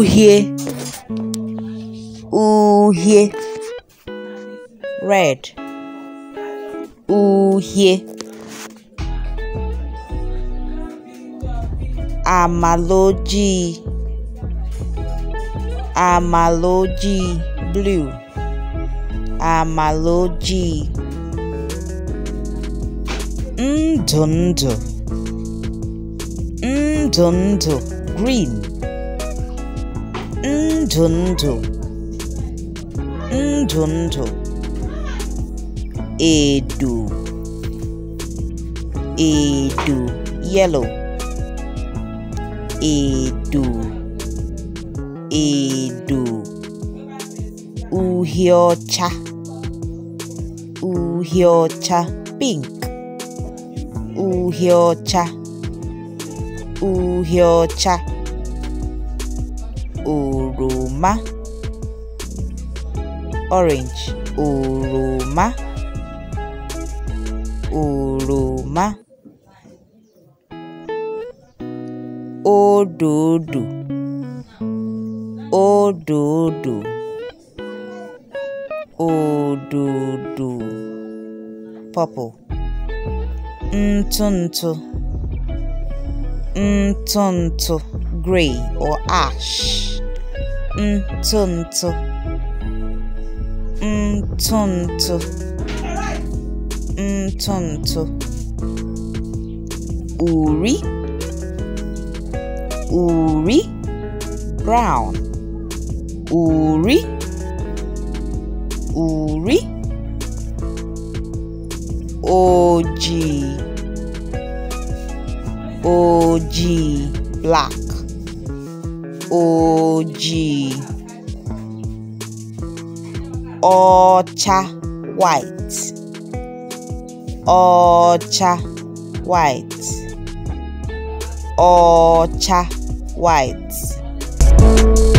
Ooh, here. red here. amaloji amaloji blue amaloji ndụ ndụ green ndhundhu ndhundhu edu edu yellow edu edu uhie ọcha pink uhie ọcha oroma orange oroma oroma òdòdó òdòdó òdòdó purple ntụ ntụ ntụ ntụ gray or ash ntụntụ ntụntụ ntụntụ uri uri brown uri uri ojii ojii black ojii ọcha white ọcha white ọcha white